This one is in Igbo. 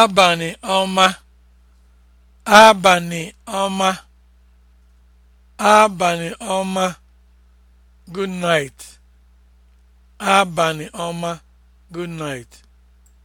abalị ọma abalị ọma abalị ọma good night abalị ọma good night